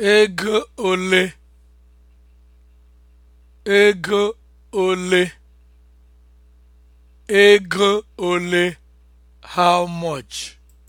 Ego ole? Ego ole? Ego ole? How much?